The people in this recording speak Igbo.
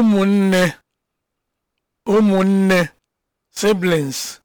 ụmụnne ụmụnne siblings